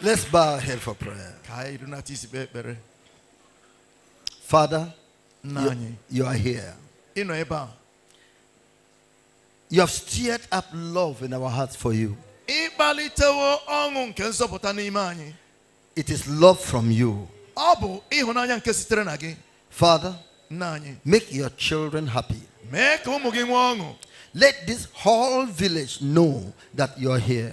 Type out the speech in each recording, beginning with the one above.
Let's bow our head for prayer. Father, you, you are here. You have stirred up love in our hearts for you. It is love from you. Father, make your children happy. Let this whole village know that you are here.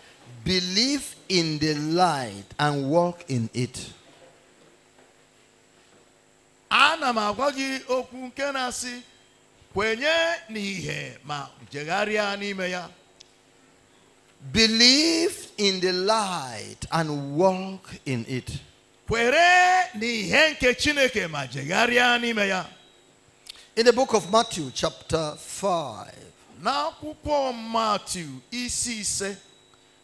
Believe in the light and walk in it. Ana m agwa gị okwu nke na-asị kwenye n'ihe ma jegharịa n'ime ya. Believe in the light and walk in it. Kwere n'ihe nke Chineke ma jegharịa n'ime ya. In the book of Matthew chapter 5. N'akwụkwọ Matthew isi ise.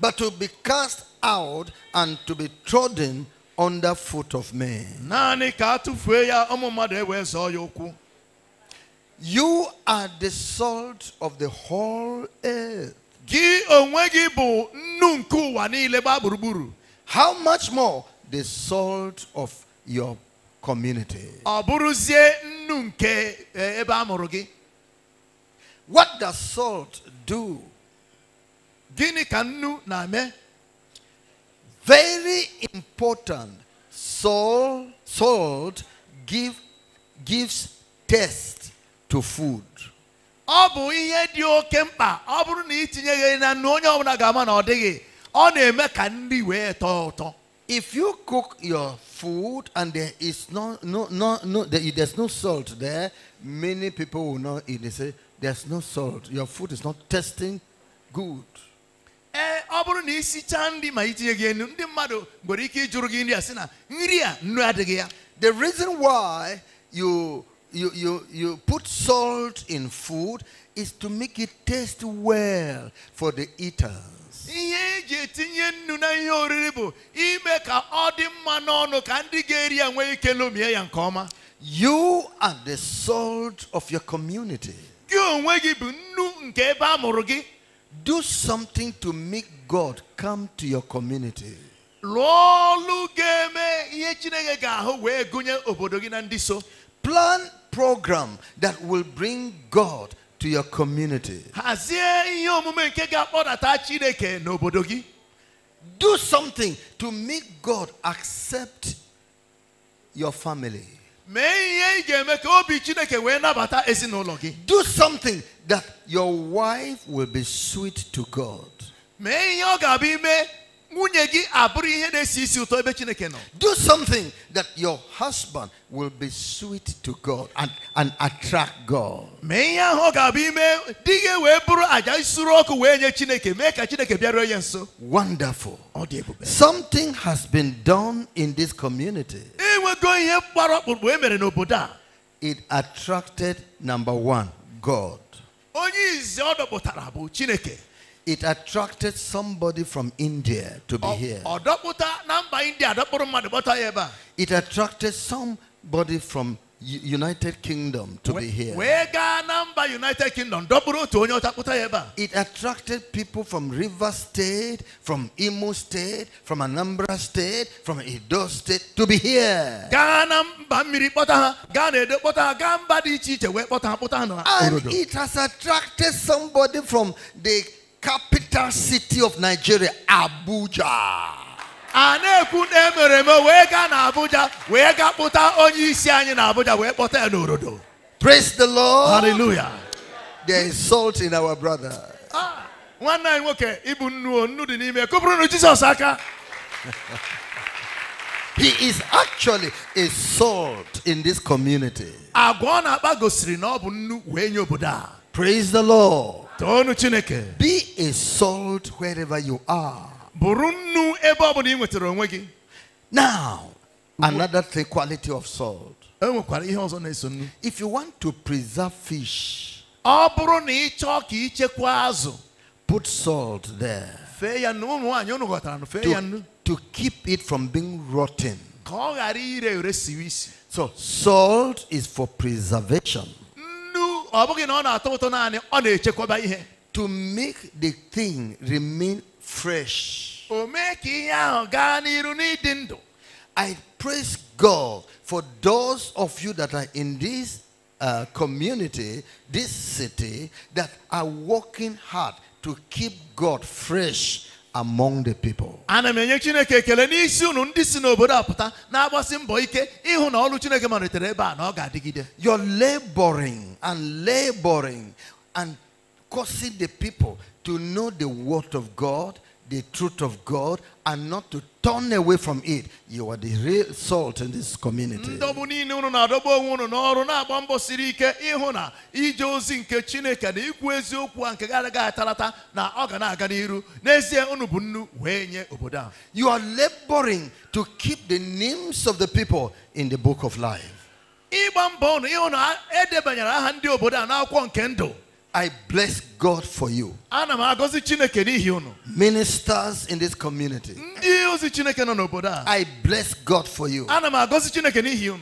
but to be cast out and to be trodden under foot of men. You are the salt of the whole earth. How much more the salt of your community? Eh, what does salt do Gịnị ka nnu na-eme? Very important. Salt, salt give, gives test to food. Ọ bụ ihe dị oke mkpa ọ bụrụ na itinyeghị na nnu onye ga ga-ama na o dịghị ọ na-eme ka nri wee tọọ ụtọ. If you cook your food and there is no, no, no, no, there's no salt there, many people will not eat. They say, there's no salt. Your food is not tasting good. Eh, ọ bụrụ na ma itinye gị enu ndị mmadụ nwere ike ịjụrụ gị nri a sị na nri a nnu adịghị ya the reason why you you you you put salt in food is to make it taste well for the eaters ihe eji etinye nnu na ihe oriri bụ ime ka ọ dị mma n'ọnụ ka ndị ga-eri ya nwee ike lomie ya nke ọma you are the salt of your community gị onwe gị bụ nnu nke ebe a mụrụ gị do something to make God come to your community. Plan program that will bring God to your community. Do something to make God accept your family. Do something that your wife will be sweet to God. Do something that your husband will be sweet to God and, and attract God. Wonderful. Something has been done in this community. It attracted, number one, God. It attracted somebody from India to be here. It attracted somebody from United Kingdom to be here. It attracted people from River State, from Imo State, from Anambra State, from Edo State to be here. And it has attracted somebody from the capital city of Nigeria, Abuja. Praise the Lord. Hallelujah. There is salt in our brother. he is actually a salt in this community. Praise the Lord. Be a salt wherever you are. Now, another three quality of salt. If you want to preserve fish, put salt there to, to keep it from being rotten. So, salt is for preservation to make the thing remain fresh. I praise God for those of you that are in this uh, community, this city, that are working hard to keep God fresh among the people. ana m na na your laboring and laboring and causing the people to know the word of God, the truth of God, and not to turn away from it. You are the real salt in this community. You are laboring to keep the names of the people in the book of life. I bless God for you. Ministers in this community. I bless God for you.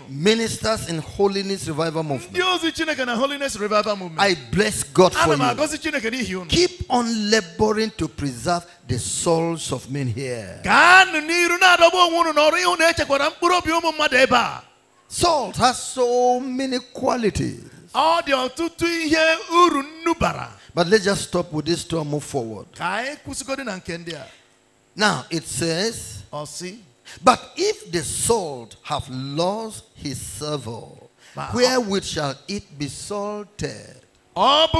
Ministers in Holiness Revival Movement. I bless God for you. Keep on laboring to preserve the souls of men here. Salt has so many qualities. All the But let's just stop with this story and move forward. Now it says. But if the salt have lost his savor, wherewith shall it be salted? If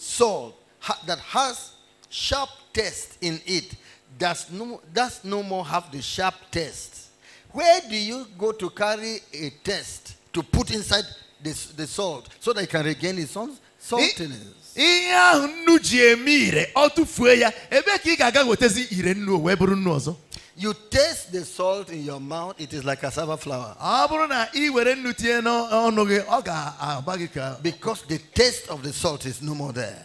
salt that has sharp taste in it does no, does no more have the sharp taste, where do you go to carry a test to put inside the, the salt so that it can regain its own saltiness? ihe ahụ nnu ji eme ire ọ tụfuo ya ebe ka ị ga-aga wetazi ire nnu wee bụrụ nnu ọzọ You taste the salt in your mouth, it is like cassava flour. Because the taste of the salt is no more there.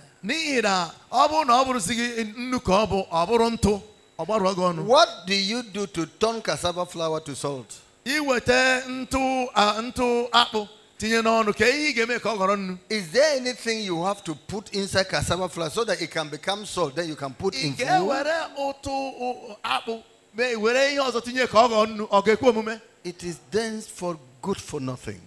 What do you do to turn cassava flour to salt? Is there anything you have to put inside cassava flour so that it can become salt? Then you can put in food. It is dense for good for nothing.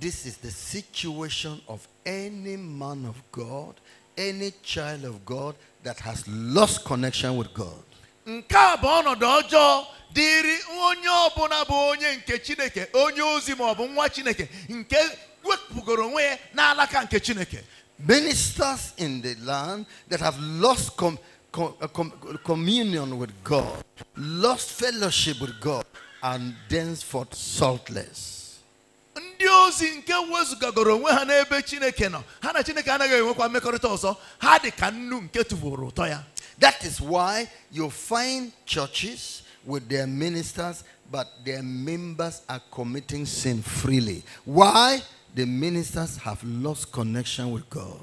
This is the situation of any man of God, any child of God that has lost connection with God. Nke a bụ ọnọdụ ọjọọ dịrị onye ọbụla bụ onye nke Chineke, onye ozi nwa Chineke nke wepụgoro onwe ya n'alaka nke Chineke. Ministers in the land that have lost com com uh, com communion with God, lost fellowship with God, and thenceforth saltless ndị ozi nke wezụgagoro onwe ha n'ebe chineke nọ ha na chineke anaghị enwekwa mmekọrịta ọzọ ha dị ka nnu nke tụbụrụ ụtọ ya that is why you find churches with their ministers but their members are committing sin freely why the ministers have lost connection with god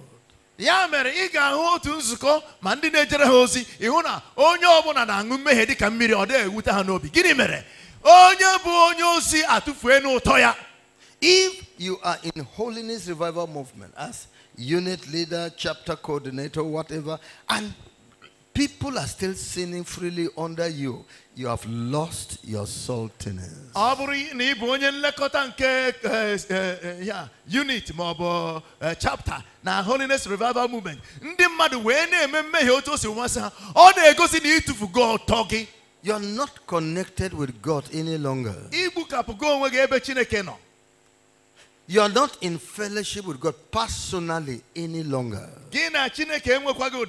ya mere ị ga-ahụ otu nzukọ ma ndị na-ejere ha ozi ịhụ na onye ọbụla na-aṅụ mmehie dị ka mmiri ọ dịghị ewute ha n'obi gịnị mere onye bụ onye ozi atụfuo n'ụtọ ya if you are in Holiness Revival Movement as unit leader, chapter coordinator, whatever, and people are still sinning freely under you, you have lost your saltiness. Aburi eh, eh, eh, unit ma chapter na holiness revival movement. Ndị mmadụ wee na-eme mmehie otu o si You are not connected with God any longer. You are not in fellowship with God personally any longer. And therefore,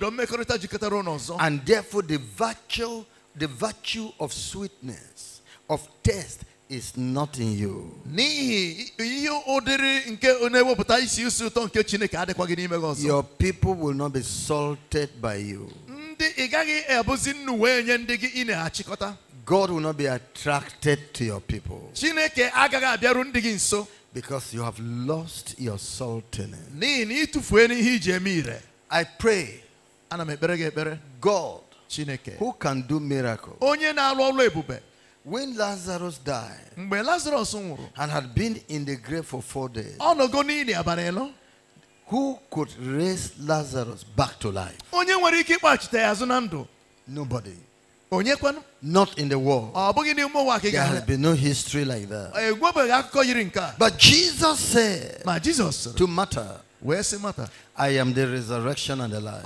the virtue, the virtue of sweetness, of taste, is not in you. Your people will not be salted by you. God will not be attracted to your people. Because you have lost your saltiness. I pray. God, who can do miracles, when Lazarus died and had been in the grave for four days, who could raise Lazarus back to life? Nobody. Not in the world. There has been no history like that. But Jesus said Jesus, to matter. Where's matter? I am the resurrection and the life.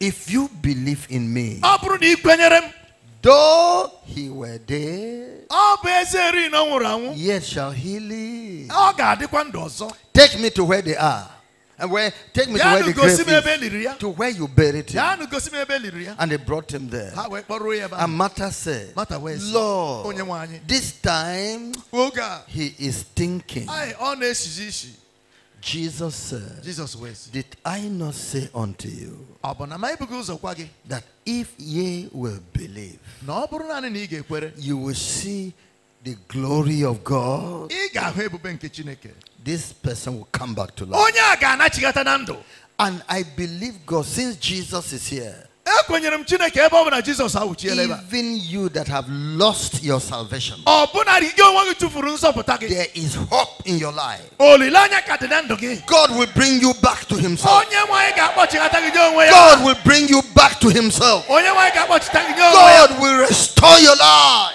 If you believe in me, though he were dead, yet shall he live. Take me to where they are. And where take me to where the grave is, to where you buried him. And they brought him there. And Martha said, Lord, this time oh, he is thinking. Jesus said, Jesus Did I not say unto you that if ye will believe, you will see the glory of God? this person will come back to life. And I believe God, since Jesus is here, even you that have lost your salvation, there is hope in your life. God will bring you back to Himself. God will bring you back to Himself. God will restore your life.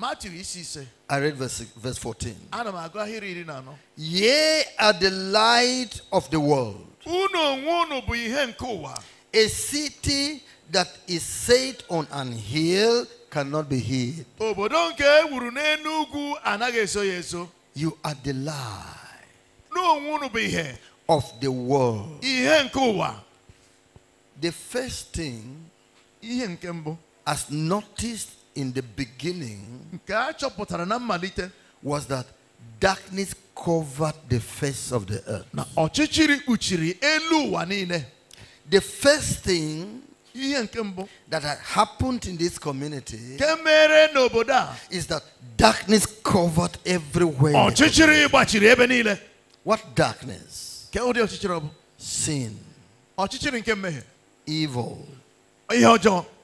Matthew says. I read verse, verse 14. Ye are the light of the world. A city that is set on an hill cannot be hid. You are the light of the world. The first thing as noticed in the beginning was that darkness covered the face of the earth. The first thing that had happened in this community is that darkness covered everywhere. What darkness? Sin. Evil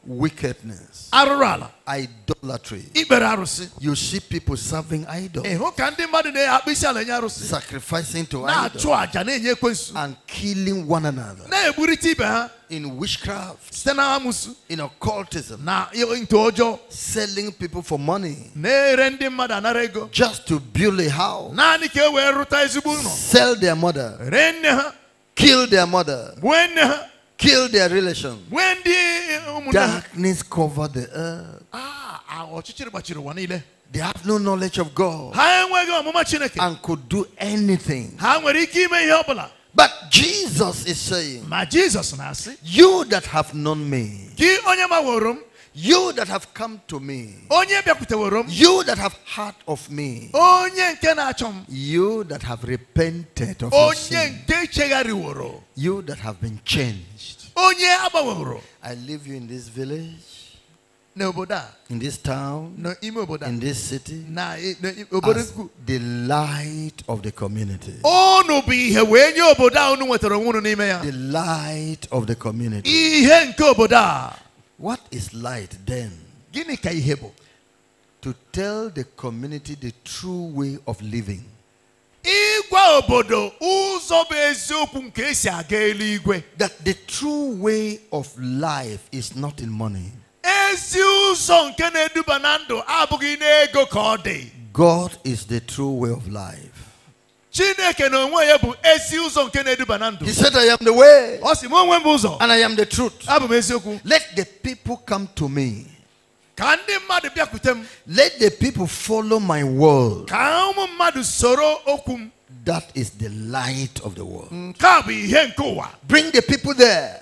wickedness, idolatry. Ikpere arụsị. You see people serving idols. Ịhụ ka ndị mmadụ na-akpụ isi ala arụsị. Sacrificing to idols. Na-achụ àjà na-enye ekwensu. And killing one another. Na-egburita ibe ha. In witchcraft. Site na amụsụ. In occultism. Na ọjọọ. Selling people for money. Na-ere ndị mmadụ anara ego. Just to build a house. Naanị ka e wee rụta ezigbo ụlọ. Sell their mother. Ree nne ha. Kill their mother. Gbuo nne ha kill their relation. Darkness covered the earth. Ah, ah, they have no knowledge of God and could do anything. But Jesus is saying, You that have known me, you that have come to me. You that have heard of me. You that have repented of your sin. You that have been changed. I leave you in this village. In this town, in this city, as the light of the community. The light of the community. What is light then? Gini ka To tell the community the true way of living. That the true way of life is not in money. God is the true way of life chineke ya bụ ezi ụzọ nke na-eduba na ndụ he said i am the way ọ sị onwe m bụ ụzọ and i am the truth abụ m eziokwu let the people come to me ka ndị mmadụ bịakwute m let the people follow my word ka ụmụ mmadụ soro okwu m that is the light of the world nke a bụ ihe nke ụwa bring the people there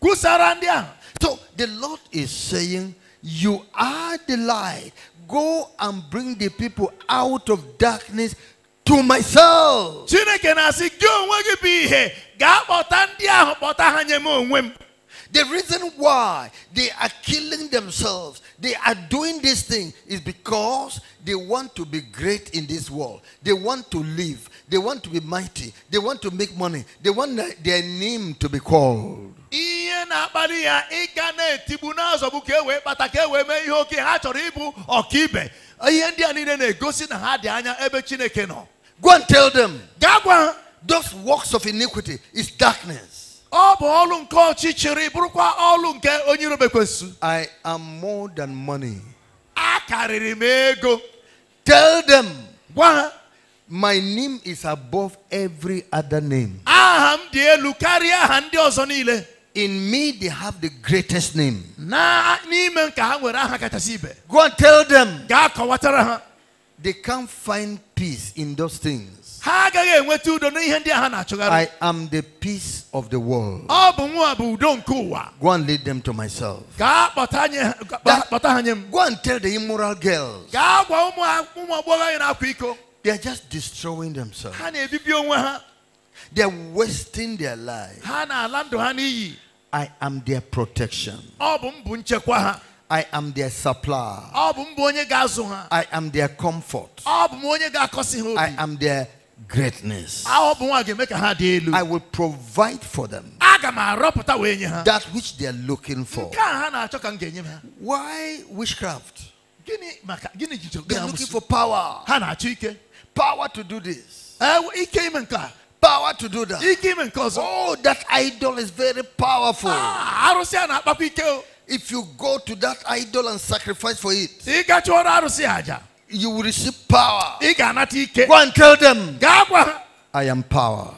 kwusara ndị ahụ so the lord is saying you are the light go and bring the people out of darkness to myself. Chineke na-asị gị onwe gị bụ ihe gaa kpọta ndị ahụ kpọta ha nye m onwe m. The reason why they are killing themselves, they are doing this thing, is because they want to be great in this world. They want to live. They want to be mighty. They want to make money. They want their name to be called. ihe na-akpali ya ịga na-etigbu n'azọgbu ka e wee kpata ka e wee mee ihe oke ha chọrọ ịbụ ọkaibe ihe ndị a niile na-egosi na ha dị anya ebe chineke nọ Go and tell them. Those works of iniquity is darkness. I am more than money. Tell them. My name is above every other name. In me, they have the greatest name. Go and tell them they can't find peace in those things. I am the peace of the world. Go and lead them to myself. That, go and tell the immoral girls. They are just destroying themselves. They are wasting their lives. I am their protection. I am their supply. I am their comfort. I am their greatness. I will provide for them that which they are looking for. Why witchcraft? They are looking for power. Power to do this. Power to do that. Oh, that idol is very powerful. Ah, if you go to that idol and sacrifice for it, you will receive power. Go and tell them. I am power.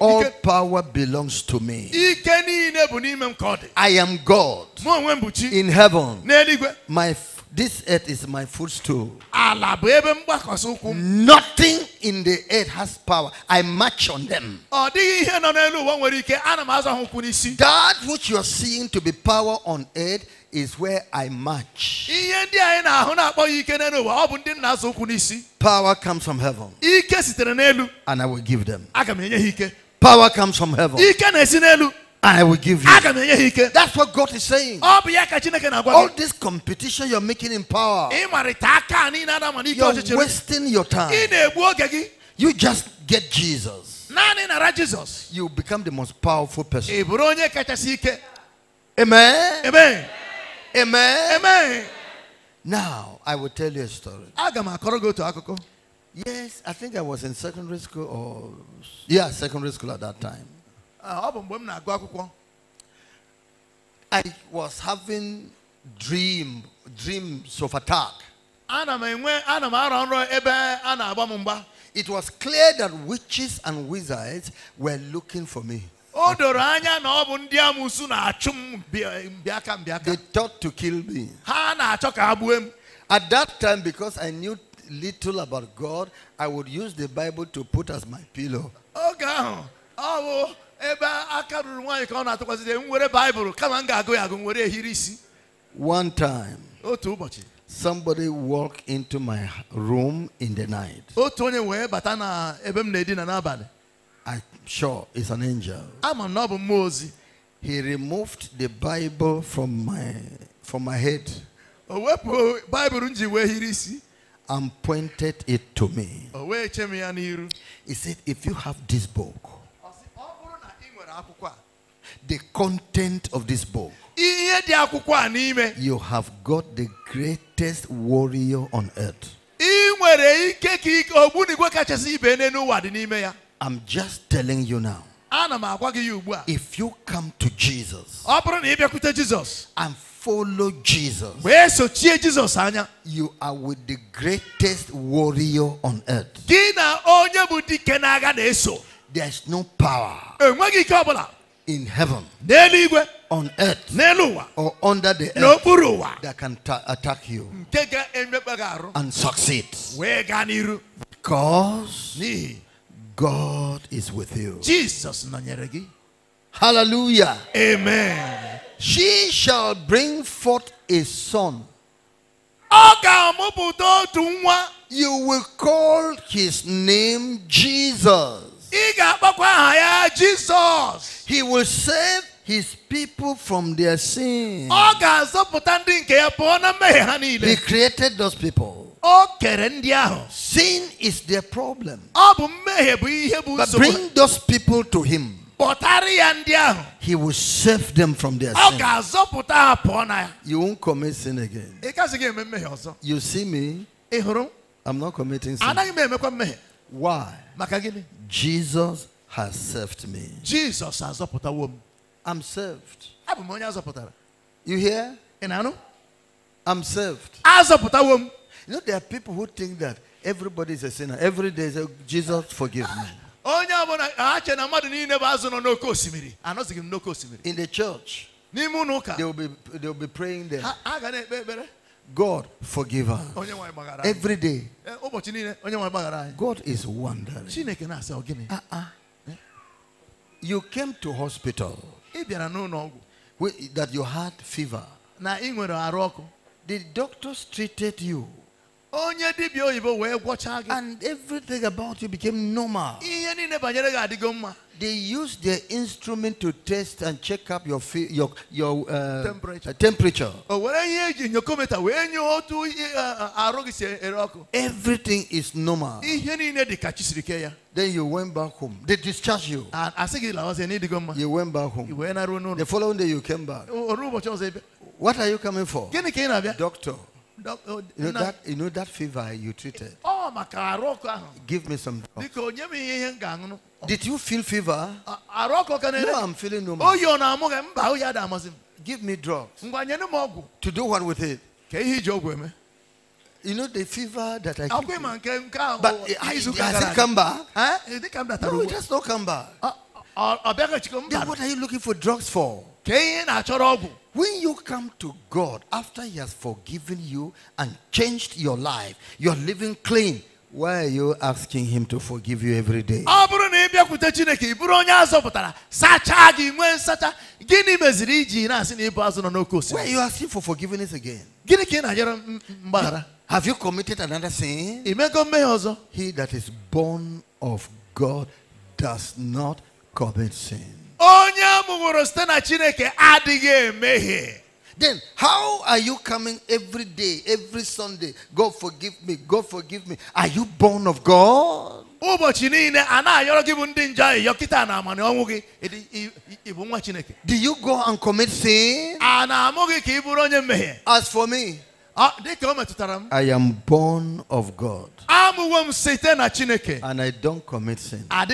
All power belongs to me. I am God in heaven. My this earth is my footstool. Nothing in the earth has power. I march on them. That which you are seeing to be power on earth is where I march. Power comes from heaven. And I will give them. Power comes from heaven. I will give you. That's what God is saying. All this competition you're making in power, you're wasting your time. You just get Jesus. You become the most powerful person. Amen. Amen. Amen. Amen. Now, I will tell you a story. Yes, I think I was in secondary school or, yeah, secondary school at that time. I was having dream dreams of attack. It was clear that witches and wizards were looking for me. They thought to kill me. At that time, because I knew little about God, I would use the Bible to put as my pillow ebe aka ruru nwaanyị ka ọ na-atụkwasịde m were baịbụl kama m ga-agụ ya agụ m ehiri isi one time otu ụbọchị somebody walk into my room in the night otu onye wee bata na ebe m na-edina n'abalị I'm sure it's an angel ama m na ọ bụ mmụọ ozi he removed the bible from my from my head o wepụ baịbụl m ji wee hiri isi and pointed it to me o wee che m ya n'iru he said if you have this book the content of this book. You have got the greatest warrior on earth. I'm just telling you now. If you come to Jesus and follow Jesus, you are with the greatest warrior on earth. There's no power eh, in heaven, on earth, or under the earth that can attack you and succeed. Because God is with you. Jesus. Hallelujah. Amen. She shall bring forth a son. You will call his name Jesus. Jesus. He will save his people from their sins. Oh, he created those people. Oh, sin is their problem. Oh, but bring those people to him. He will save them from their sin. You won't commit sin again. You see me? Eh, I'm not committing sin. Why? Jesus has saved me. Jesus has zọpụtawo i I'm saved. Abụ m onye azọpụtara. You hear? Ị i I'm saved. Azọpụtawo m. You know there are people who think that everybody is a sinner. Every day say Jesus forgive me. Onye ọbụla ha che na mmadụ niile bụ azụ nọ n'oké In the church. They will be they will be praying there. God forgive us. Every day. Eh, God is wondering. Uh-uh. You came to hospital that you had fever. The doctors treated you. And everything about you became normal. They used their instrument to test and check up your your your uh, temperature. Uh, temperature. Everything is normal. Then you went back home. They discharged you. You went back home. The following day you came back. What are you coming for? Doctor. Uh, you know, that, you know that fever you treated? Oh, give me some drugs. Did you feel fever? No, I'm feeling no more. Give me drugs. To do what with it? You know the fever that I keep But it, has it come back? Huh? No, it has not come back. Then what are you looking for drugs for? When you come to God after He has forgiven you and changed your life, you're living clean. Why are you asking Him to forgive you every day? Why are you asking for forgiveness again? Have you committed another sin? He that is born of God does not commit sin. Then how are you coming every day, every Sunday? God forgive me, God forgive me. Are you born of God? Do you go and commit sin? As for me. Ah, I am born of God. Ah, and I don't commit sin. Ah,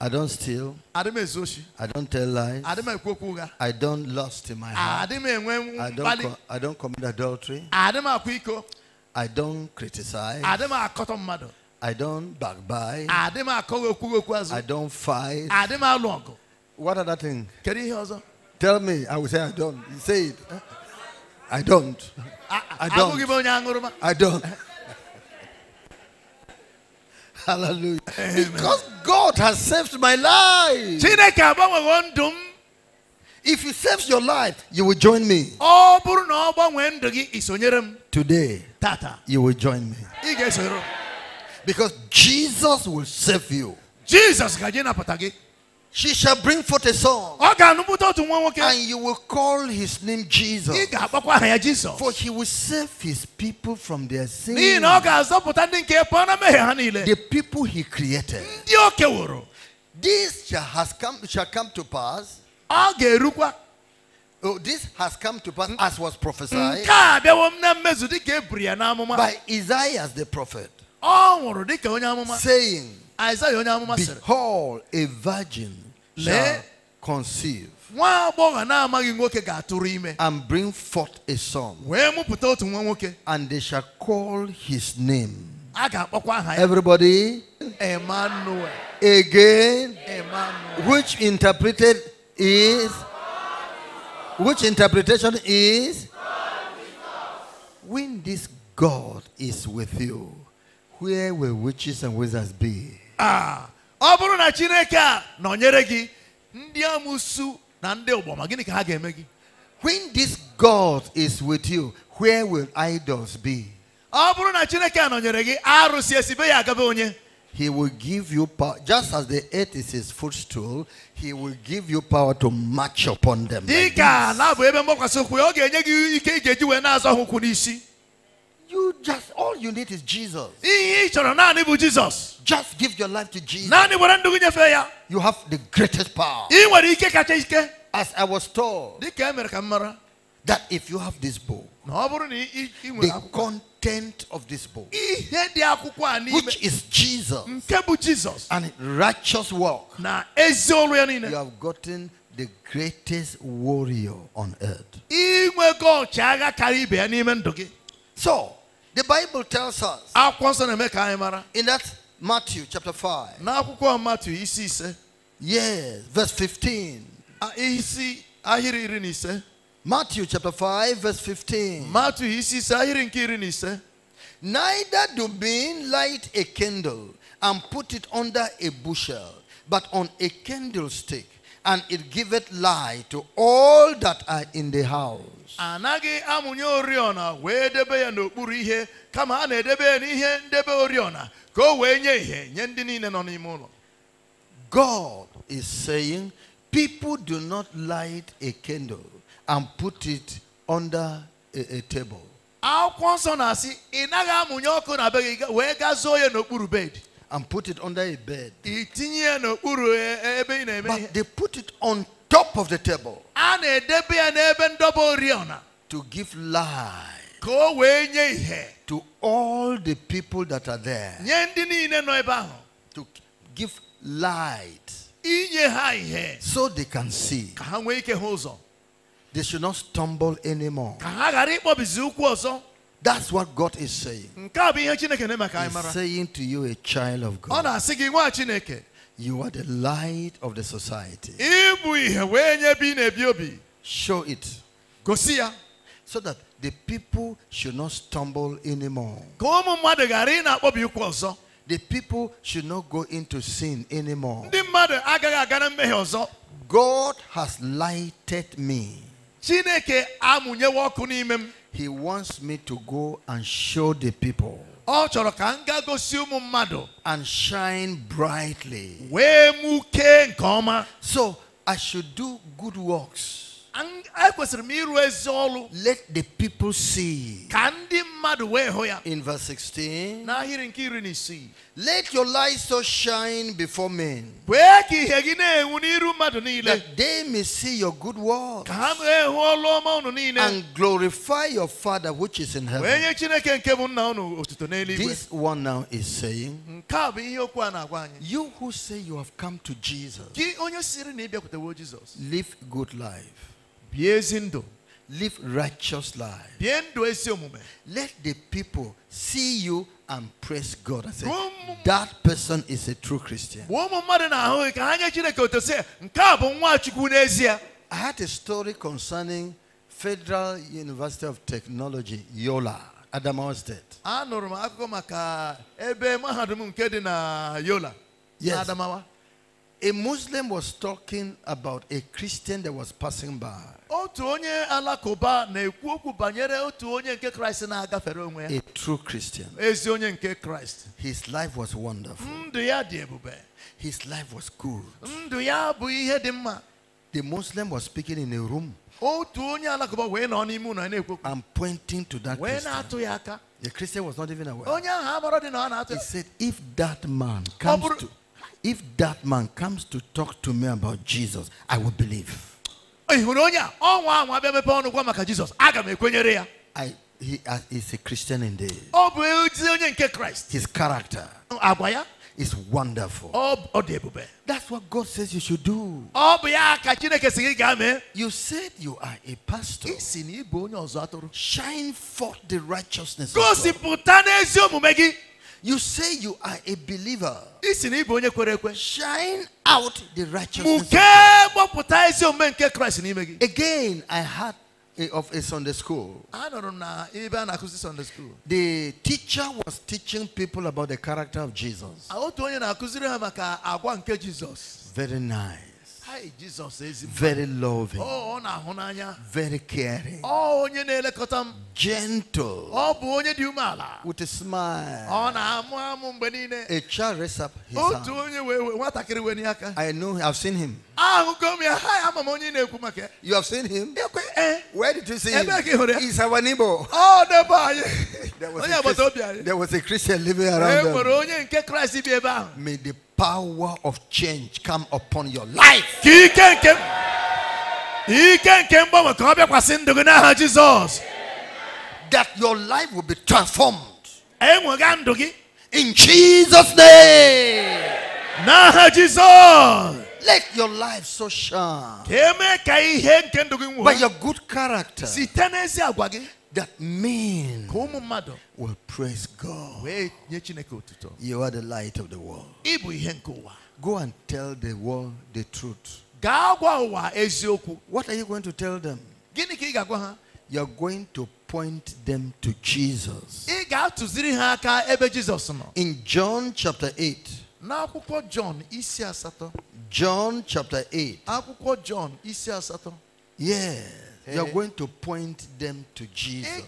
I don't steal. I don't tell lies. I don't lust in my heart. I don't, I don't commit adultery. I don't criticize. I don't backbite. I don't fight. What other thing? Tell me. I will say I don't. say it. I don't. I don't. I don't. Hallelujah. Amen. Because God has saved my life. If He saves your life, you will join me. Today, Tata. you will join me. Because Jesus will save you. Jesus she shall bring forth a son. And you will call his name Jesus. For he will save his people from their sins. The people he created. This shall, has come, shall come to pass. Oh, this has come to pass as was prophesied by Isaiah the prophet, saying, Behold, a virgin shall conceive and bring forth a son. And they shall call his name. Everybody, Emmanuel. Again, Emmanuel. which interpreted is, which interpretation is, when this God is with you, where will witches and wizards be? Ah. ọ bụrụ na chineke a nọnyere gị ndị amusu na ndị ụgbọma gịnị ka ha ga-eme gị when this god is with you where will idols be ọ bụrụ na chineke a nọnyere gị arụsị esibe ya agaba onye He will give you power, just as the earth is his footstool, he will give you power to march upon them. na ebe mgbakwasị ọ ga-enye gị ike n'isi. You just all you need is Jesus. Jesus. Just give your life to Jesus. You have the greatest power. As I was told that if you have this book, the content of this book, which is Jesus, and righteous work, you have gotten the greatest warrior on earth. So, the Bible tells us in that Matthew chapter 5. N'akwụkwọ Matthew isi ise. Yes, verse 15. Matthew chapter 5 verse 15. Matthew he says, ahirin nke Neither do men light a candle and put it under a bushel, but on a candlestick and it giveth light to all that are in the house. amụnye oriọna debe ya n'okpuru ihe kama a na-edebe ya n'ihe ndebe oriọna ka o wee nye ihe nye ndị niile nọ n'ime ụlọ. God is saying people do not light a candle and put it under a, a table. Akwụkwọ nsọ na-asị ị naghị amụnye ọkụ na be gị wee ya n'okpuru bed and put it under a bed. But they put it on top of the table to give light to all the people that are there. To give light so they can see. They should not stumble anymore. That's what God is saying. He's saying to you, a child of God. You are the light of the society. Show it. So that the people should not stumble anymore. The people should not go into sin anymore. God has lighted me. He wants me to go and show the people. Ọ chọrọ ka m gaa gosi ụmụ mmadụ. And shine brightly. Wee mụkee nke ọma. So I should do good works. Ekwesịrị m ịrụ ezi ọrụ. Let the people see. Ka ndị mmadụ. Oh in verse 16. Let your light so shine before men. That they may see your good works. And glorify your Father which is in heaven. This one now is saying. You who say you have come to Jesus. Live good life live righteous life. Let the people see you and praise God and say, that person is a true Christian. I had a story concerning Federal University of Technology, Yola, Adamawa State. Anụrụ Yola, Adamawa. A Muslim was talking about a Christian that was passing by otu onye alakụba na-ekwu okwu banyere otu onye nke kraịst na-agafere onwe ya a true christian ezi onye nke kraịst his life was wonderful ndụ ya dị ebube his life was good ndụ ya bụ ihe dị mma the muslim was speaking in a room otu onye alakụba wee nọ n'ime ụlọ na-ekwu okwu and pointing to that wee na-atụ ya aka the christian was not even aware onye ahụ amara dị na ọ na-atụ he said if that man comes to if that man comes to talk to me about jesus i will believe ị oh, I, he uh, is a Christian indeed. ọ oh, His character is wonderful. Oh, That's what God says you should do. You said you are a pastor. Shine forth the righteousness. Of God. You say you are a believer. Shine out the righteousness. Again, I had of a Sunday school. I don't know even Sunday school. The teacher was teaching people about the character of Jesus. Very nice very loving, oh, very caring, oh, gentle, with a smile. A child raises up his hand. I know, I've seen him. You have seen him? Eh. Where did you see him? He's our neighbor. there, was a Christian, there was a Christian living around them. May the power of change come upon your life. That your life will be transformed. In Jesus' name. Jesus. Let your life so shine by your good character that men will praise God. You are the light of the world. Go and tell the world the truth. What are you going to tell them? You're going to point them to Jesus. In John chapter 8. N'akwụkwọ John isi asatọ. John chapter 8. Akwụkwọ John isi asatọ. Yes you are eh? going to point them to Jesus.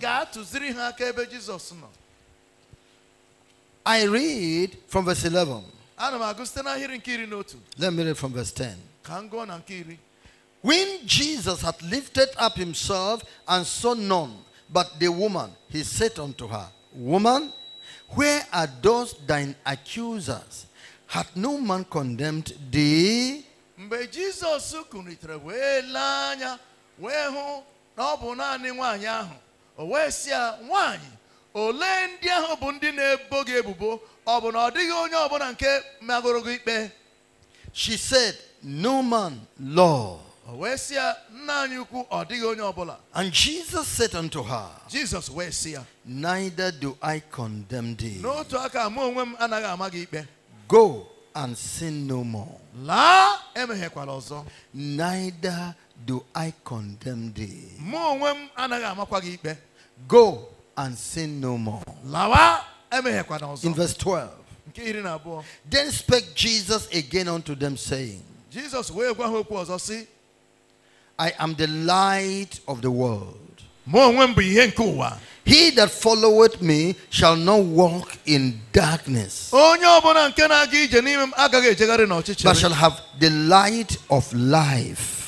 I read from verse 11. Let me read from verse 10. When Jesus had lifted up himself and saw none but the woman, he said unto her, Woman, where are those thine accusers? Hath no man condemned thee? wee hụ na ọ bụ naanị nwaanyị ahụ o wee si ya nwaanyị olee ndị ahụ bụ ndị na-ebo gị ebubo ọ bụ na ọ dịghị onye ọbụla nke magoro gị ikpe she said no man law. o wee si ya nna anyị ukwu ọ dịghị onye ọbụla and jesus said unto her jesus wee si ya neither do i condemn thee n'otu aka mụ onwe m anaghị ama gị ikpe go and sin no more laa emeghekwala ọzọ neither Do I condemn thee? Go and sin no more. In verse 12. Then spake Jesus again unto them saying. Jesus I am the light of the world. He that followeth me shall not walk in darkness, but shall have the light of life.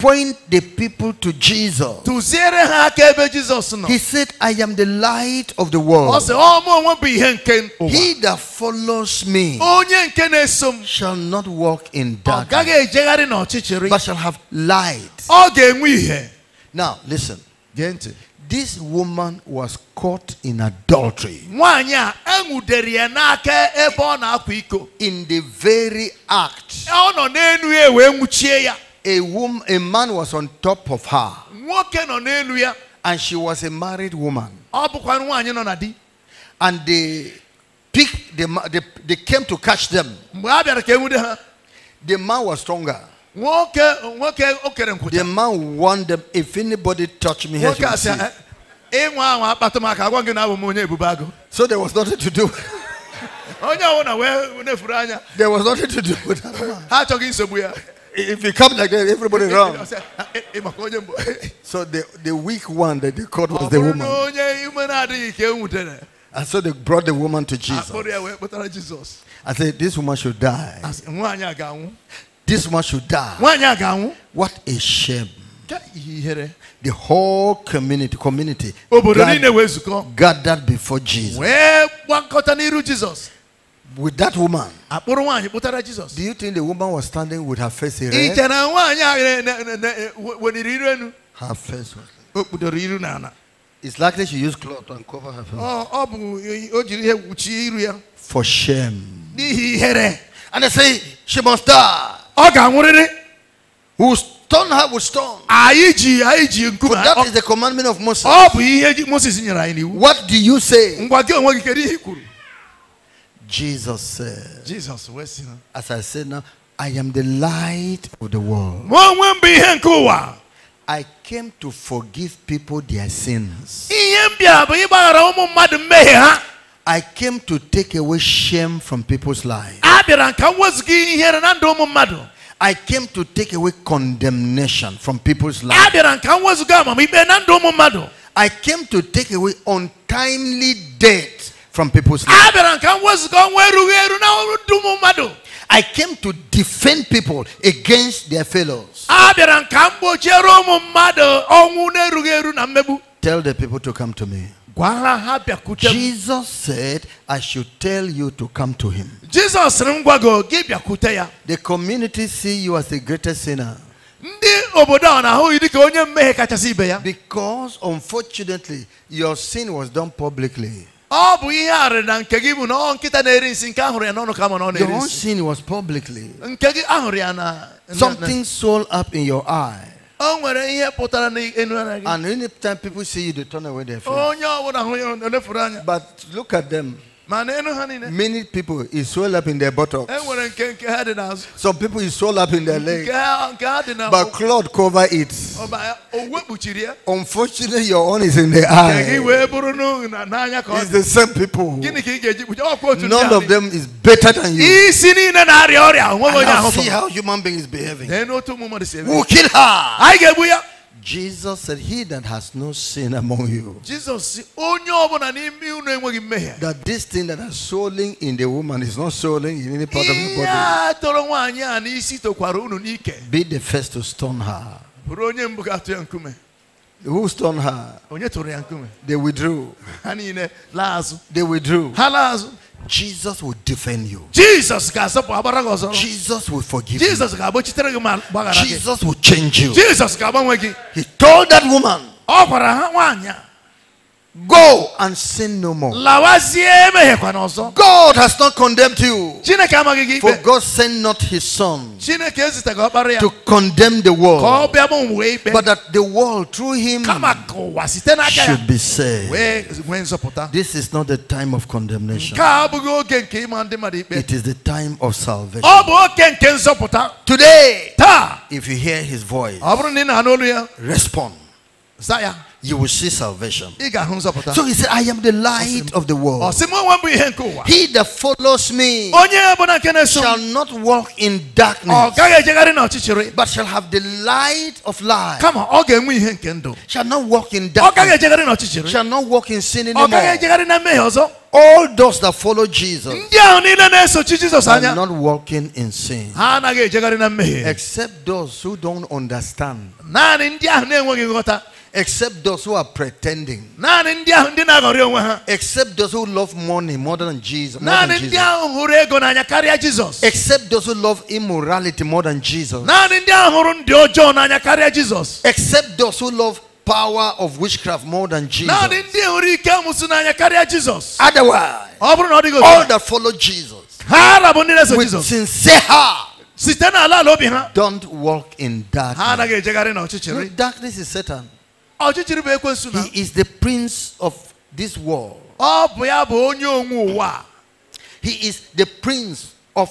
point the people to Jesus. He said, I am the light of the world. He that follows me shall not walk in darkness, but shall have light. Now, listen. This woman was caught in adultery. In the very act a woman, a man was on top of her. And she was a married woman. And they picked the, they, they came to catch them. The man was stronger. The man warned them if anybody touch me here eh, eh, So there was nothing to do. There was nothing to do with that man. If you come like that, everybody wrong. Eh, eh, eh, so the, the weak one that they caught was the woman. And so they brought the woman to ah, Jesus. I said, This woman should die. This woman should die. What a shame. The whole community, community gathered, gathered before Jesus. with that woman. àpòrò wọn àyìnbó tára jesus. do you think the woman was standing with her face erect. ìjànà wọn àyà rẹ nà nà her face was. òkùdọ̀rọ̀ irú nànà. it's likely she used cloth and cover her face. ọ ọ bụ o jiri ihe kpuchie iru ya. for shame. n'ihi ihere. and they say she must die. ọ ga-anwụrịrị. who stone her with stone. anyị ji anyị ji nkume. for that is the commandment of Moses. ọ bụ ihe Moses nyere anyị n'iwu. what do you say. ngwa gị onwe gị kedu ihe i kwuru. Jesus said, Jesus, as I said now, I am the light of the world. I came to forgive people their sins. I came to take away shame from people's lives. I came to take away condemnation from people's lives. I came to take away untimely death from people's lives. I came to defend people against their fellows. Tell the people to come to me. Jesus said, I should tell you to come to him. The community see you as the greatest sinner. Because unfortunately, your sin was done publicly ọ bụ ihe Your own sin was publicly. Something swelled up in your eye. O nwere ihe And anytime people see you they turn away their face. But look at them. Many people is swell up in their buttocks. Eh, Some people is swell up in their legs. But cloth cover it. Oh, uh, oh, Unfortunately, your own is in the eye. It's the same people. None of them is better than you. Ah, and now see how human beings behaving. Eh, who kill her? Jesus said, He that has no sin among you. Jesus That this thing that is swelling in the woman is not swelling in any part of the body. Be the first to stone her. Who stoned her? They withdrew. They withdrew. Jesus will defend you. Jesus Jesus will forgive Jesus you. Jesus will change you. Jesus He told that woman Go and sin no more. God has not condemned you. For God sent not his son to condemn the world, but that the world through him should be saved. This is not the time of condemnation, it is the time of salvation. Today, if you hear his voice, respond you will see salvation. So he said, I am the light of the world. He that follows me shall not walk in darkness, but shall have the light of life. Shall not walk in darkness, shall not walk in sin anymore. All those that follow Jesus are not walking in sin. Except those who don't understand. Except those who are pretending. Except those who love money more than Jesus. More than Jesus. Except those who love immorality more than Jesus. Except those who love power of witchcraft more than Jesus. Otherwise, all that follow Jesus with sincere heart. Don't walk in darkness. darkness is Satan. He is the prince of this world. He is the prince of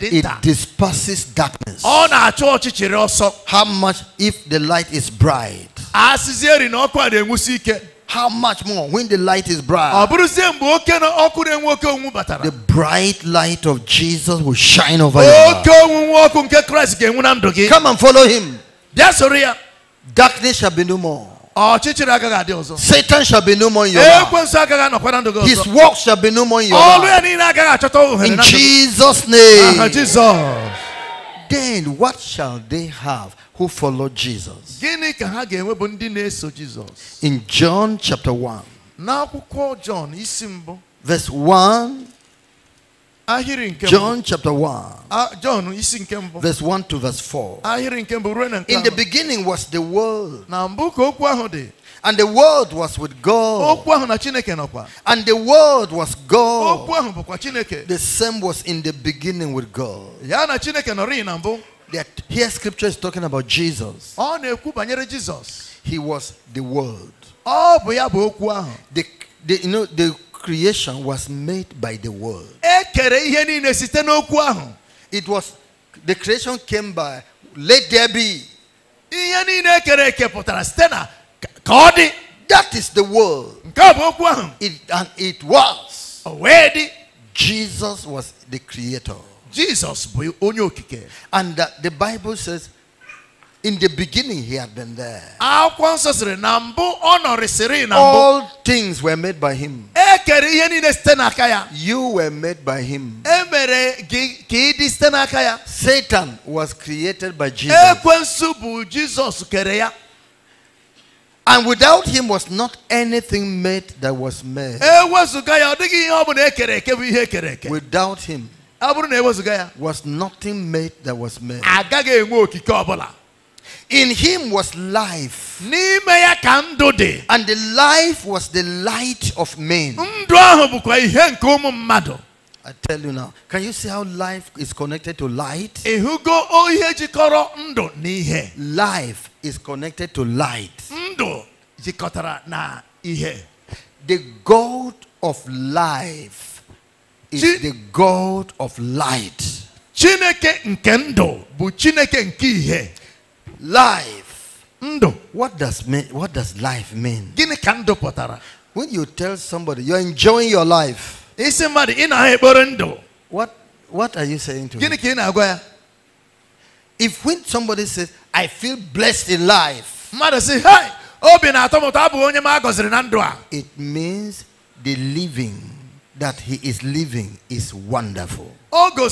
It disperses darkness. How much if the light is bright? How much more when the light is bright? The bright light of Jesus will shine over you. Come and follow him. Darkness shall be no more. Satan shall be no more in your life. His work shall be no more in your life. In Jesus' name. Then what shall they have who follow Jesus? In John chapter 1. Verse 1 John chapter 1. Ah, verse 1 to verse 4. In the beginning was the world. And the world was with God. And the world was God. The same was in the beginning with God. That here scripture is talking about Jesus. Jesus. He was the world. The, you know, the creation was made by the word. It was the creation came by let there be. That is the world. It, and it was. Jesus was the creator. Jesus. And the, uh, the Bible says in the beginning, he had been there. All things were made by him. You were made by him. Satan was created by Jesus. And without him was not anything made that was made. Without him was nothing made that was made. In him was life. And the life was the light of men. I tell you now, can you see how life is connected to light? Life is connected to light. The God of life is Ch the God of light. Life. What does, what does life mean? When you tell somebody you're enjoying your life, is somebody in what, what are you saying to him? If when somebody says, I feel blessed in life, it means the living that he is living is wonderful. When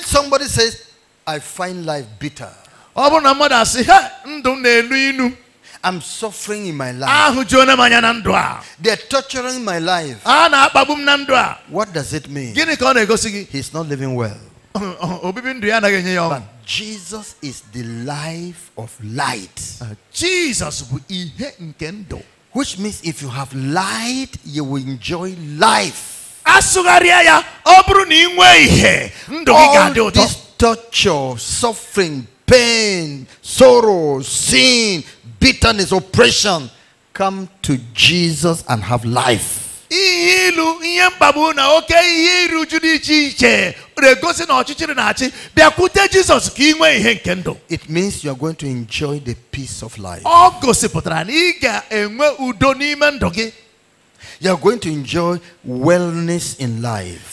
somebody says, I find life bitter. I'm suffering in my life. They're torturing my life. What does it mean? He's not living well. But Jesus is the life of light. Jesus Which means if you have light, you will enjoy life. All these torture, suffering, pain, sorrow, sin, bitterness, oppression, come to Jesus and have life. It means you are going to enjoy the peace of life. You are going to enjoy wellness in life.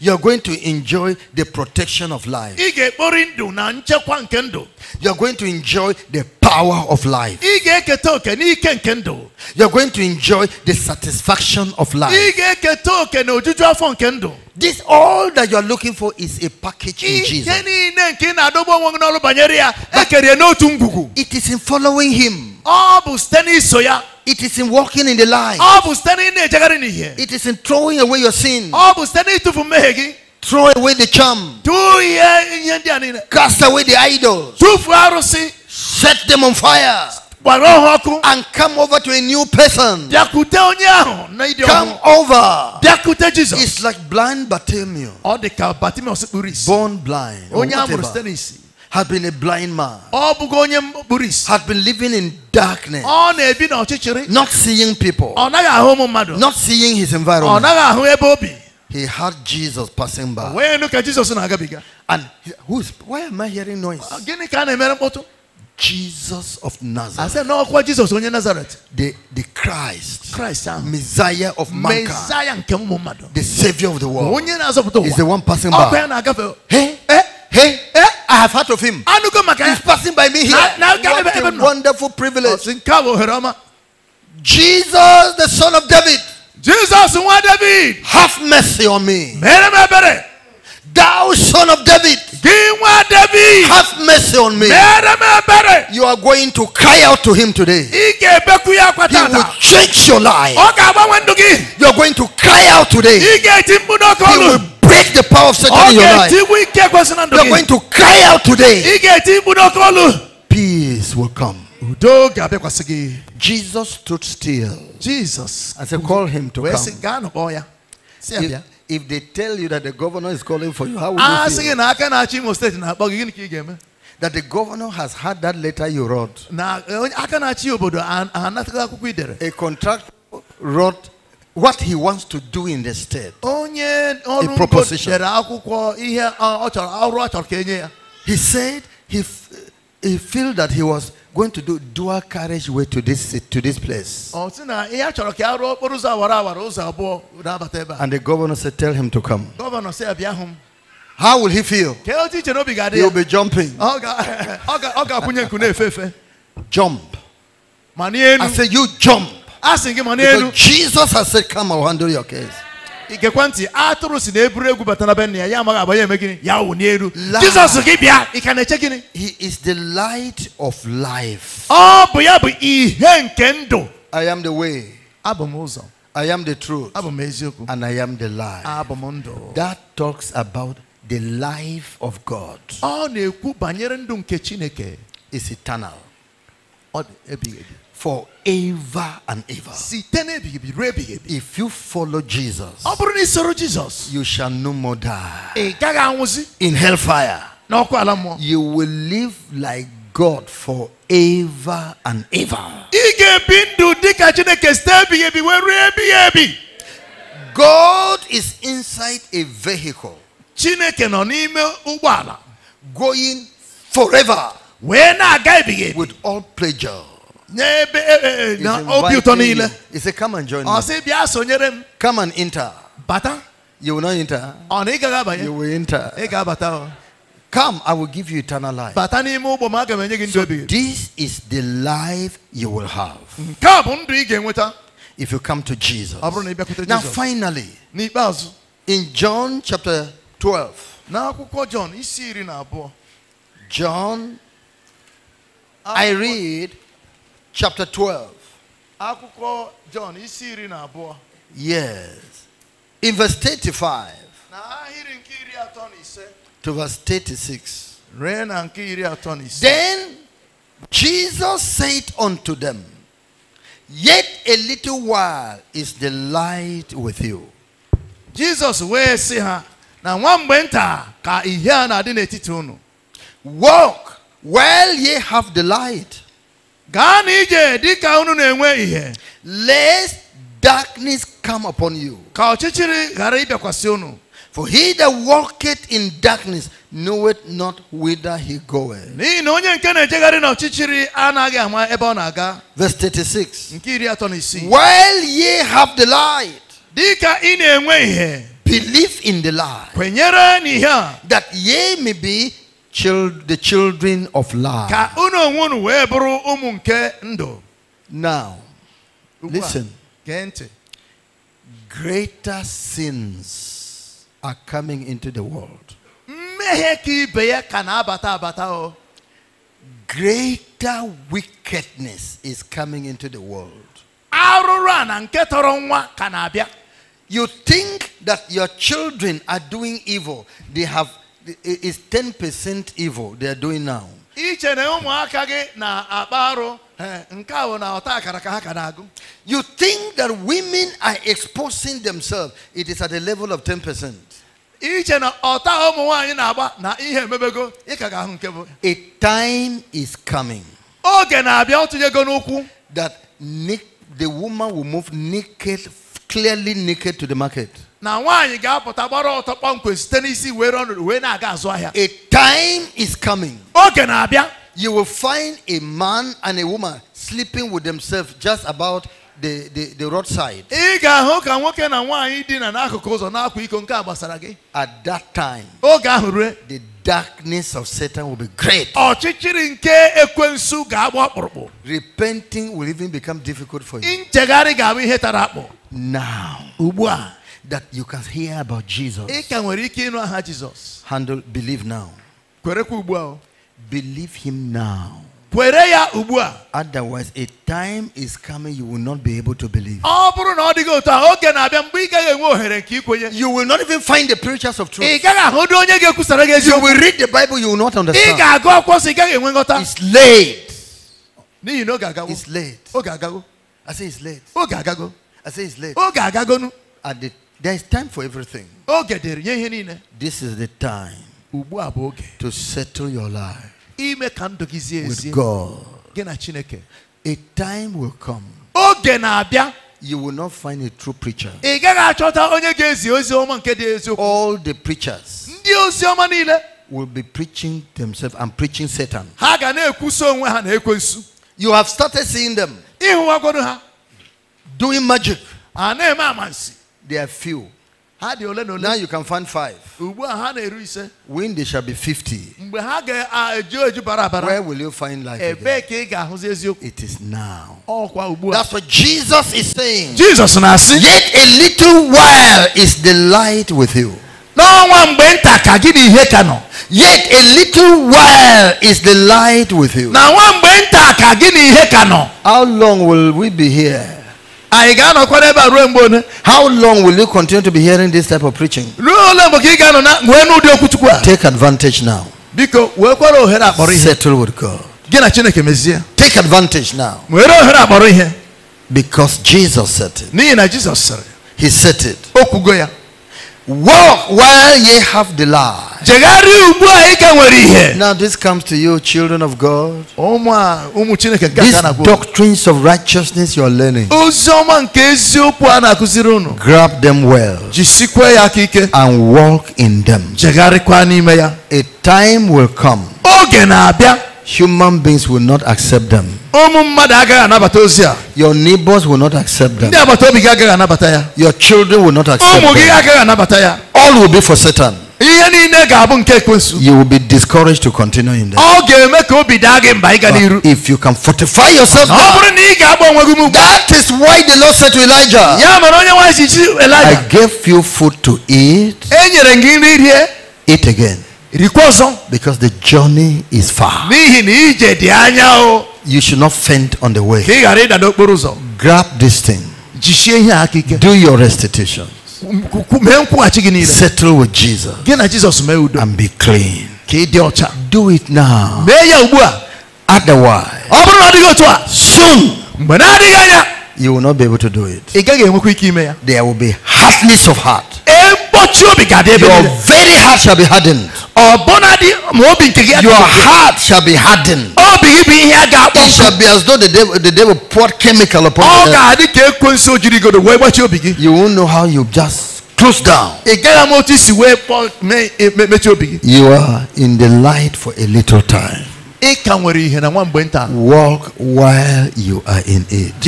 You're going to enjoy the protection of life. You're going to enjoy the power of life. You're going to enjoy the satisfaction of life. This all that you're looking for is a package in Jesus. But it is in following him. It is in walking in the light. It is in throwing away your sin. Throw away the charm. Cast away the idols. Set them on fire. And come over to a new person. Come over. It's like blind Bartimaeus. Oh, Born blind had been a blind man, had been living in darkness, not seeing people, not seeing his environment. He heard Jesus passing by. And who's, why am I hearing noise? Jesus of Nazareth. I said, no, Jesus onye Nazareth. The, the Christ. Christ. Uh, Messiah of mankind. The Savior of the world. Is the one passing by. Eh? Hey, hey, hey, hey. I have heard of him. He's eh? passing by me here. What a wonderful privilege. Oh, Jesus, the son of David. Jesus, David. Have mercy on me. Thou son of David, David, have mercy on me. You are going to cry out to him today. He will change your life. You are going to cry out today. He will break the power of Satan in your life. You are going to cry out today. Peace will come. Jesus stood still. Jesus. I said, call him to come. He, if they tell you that the governor is calling for you, how would you ah, feel? That the governor has had that letter you wrote. A contract wrote what he wants to do in the state. A uh, ọrụ He said he he felt that he was going to do dual carriageway to this to this place. And the governor said, "Tell him to come." Governor said, How will he feel? He'll be jumping. jump. I said, "You jump." Because Jesus has said, "Come, I'll handle your case." igekwa ntị atụrụ si na eburu egwu bata na be nna ya ya amaghị agba eme gịnị ya wụ n'elu jizọs gị bịa ị ka na-eche gịnị he is the light of life ọ bụ ya bụ ihe nke ndụ i am the way abụ m ụzọ i am the truth abụ m eziokwu and i am the life abụ m ndụ that talks about the life of god ọ na-ekwu banyere ndụ nke chineke is eternal ọ dị ebighị ebi forever and ever. If you follow Jesus, you shall no more die in hellfire. You will live like God forever and ever. God is inside a vehicle. Going forever. With all pleasure. Eh, eh, eh, he he said, Come and join ah, me. Come and enter. Bata? You will not enter. Ah, you will enter. Come, I will give you eternal life. So this is the life you will have mm-hmm. if you come to Jesus. Now, finally, in John chapter 12, John. John, ah, I read chapter 12. Yes. In verse 35 to verse 36. Then Jesus said unto them, Yet a little while is the light with you. Jesus where sị ha Now one went nta ka adi Walk while ye have the light gaa di ka unu na-enwe ihe lest darkness come upon you ka ọchịchịrị ghara ịbịakwasị unu for he that walketh in darkness knoweth not whither he goeth. N'ihi na onye nke na-ejegharị n'ọchịchịrị anaghị ama ebe ọ na-aga. Verse 36. Nke iri atọ na isii. While ye have the light. Dịka ị na-enwe ihe. Believe in the light. Kwenyere n'ihe a. That ye may be child, the children of light. Now, listen. Greater sins are coming into the world. Greater wickedness is coming into the world. You think that your children are doing evil. They have it's 10% evil they are doing now. iche na ụmụaka gị na-akpa na eh, you think that women are exposing themselves it is at the level of 10% a time is coming that the woman will move naked clearly naked to the market. A time is coming. you will find a man and a woman sleeping with themselves just about the, the roadside. At that time, the darkness of Satan will be great. Repenting will even become difficult for you now that you can hear about Jesus. Handle, believe now. Believe him now. Otherwise, a time is coming you will not be able to believe. You will not even find the preachers of truth. You will read the Bible, you will not understand. It's late. It's late. I say it's late. I say it's late. Oge agagonu. At the, there's time for everything. Oge dịrị nye ihe niile. This is the time. Ubu aboge To settle your life. Ime kando ndụ gị zie With God. Gị Chineke. A time will come. Oh, na-abịa. You will not find a true preacher. Ị ga chota onye ga ozi ọma nke All the preachers. Ndị ozi ọma Will be preaching themselves and preaching Satan. You have started seeing them. ha doing magic. They are few. Now you can find five. When they shall be 50, where will you find life? Again? It is now. That's what Jesus is saying. Jesus Yet a little while is the light with you. Yet a little while is the light with you. How long will we be here? How long will you continue to be hearing this type of preaching? Take advantage now. Settle with God. Take advantage now. Because Jesus said it. He said it. Walk while ye have the light. Now this comes to you, children of God. These doctrines of righteousness you are learning. Grab them well. And walk in them. A time will come human beings will not accept them. Your neighbors will not accept them. Your children will not accept them. All will be for Satan. You will be discouraged to continue in that. if you can fortify yourself, now, that is why the Lord said to Elijah, I gave you food to eat, eat again. Because the journey is far. You should not faint on the way. Grab this thing. Do your restitution. Settle with Jesus. And be clean. Do it now. Otherwise, soon you will not be able to do it. There will be hardness of heart. Your very heart shall be hardened your heart shall be hardened. It shall be as though the devil, the devil poured chemical upon you. You won't know how you just close down. You are in the light for a little time. Walk while you are in it.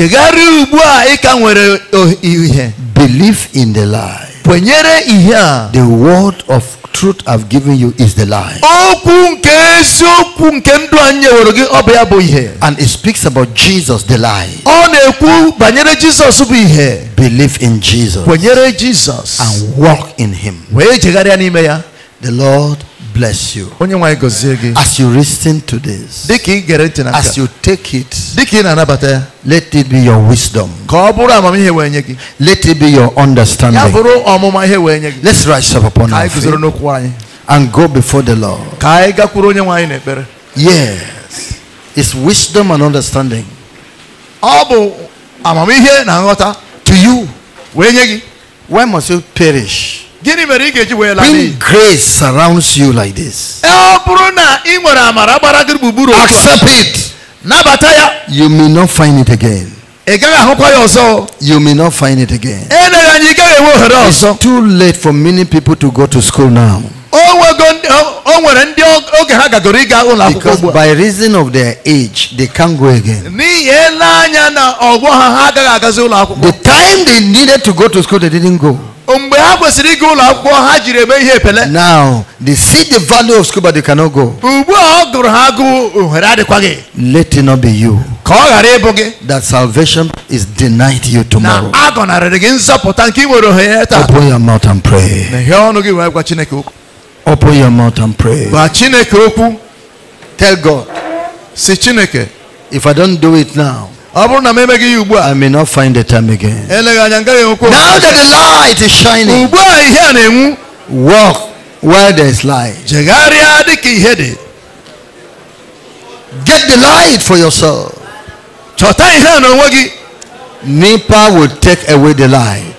Believe in the light ihe a the word of truth I've given you is the lie. Okwu nke eziokwu nke ndụ anyị gị ọ bụ ya bụ ihe. And it speaks about Jesus the lie. Ọ na-ekwu banyere bụ ihe. Believe in Jesus. Kwenyere And walk in him. Wee jegharịa n'ime ya. The Lord bless you. As you listen to this, as you take it, let it be your wisdom. Let it be your understanding. Let's rise up upon our feet and go before the Lord. Yes, it's wisdom and understanding. To you, why must you perish? When grace surrounds you like this, accept it. You may not find it again. You may not find it again. It's too late for many people to go to school now. o nwere ndị oge ha gagoro ịga ụlọ akwụkwọ because by reason of their age they can't go again. n'ihi ele anya na ọgbọ ha ha agaghị agazi ụlọ akwụkwọ. the time they needed to go to school they didn't go. mgbe ha kwesịrị ịga ụlọ akwụkwọ ha jiri eme ihe epele. now they see the value of school but they cannot go. ugbu a ọ gụrụ ha agụụ ohere adịkwaghị. let it not be you. ka ọ ghara ịbụ gị. that salvation is denied you tomorrow. na a gị nzọpụta nke ị nwere ohere taa. open your mouth and pray. na ihe ọnụ gị wee gwa Chineke okwu. Open your mouth and pray. Gwa Chineke okwu. Tell God. Si Chineke. If I don't do it now. ọ bụrụ na m emeghị ya ugbu a I may not find the time again. eleghị anya ngaghị enwekwa Now that the light is shining. ugbu a ihe a na-enwu. Walk where there is light. jegharịa dị ihe dị. Get the light for yourself. chọta ihe a n'onwe gị. NEPA will take away the light.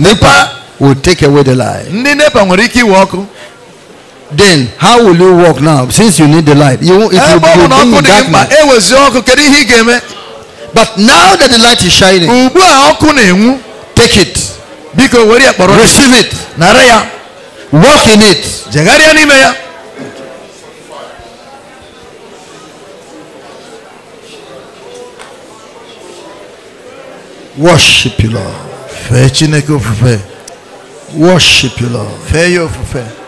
Nipa will take away the light. ndị NEPA nwere ike iwe ọkụ. then how will you walk now since you need the light you if eh, you go in darkness ewezi eh, ọkụ kedu ihe i but now that the light is shining take it biko were ya kpọrọ receive it nara ya walk in it jegharịa n'ime ya worship your lord fee chineke ofufe worship your lord fee ya ofufe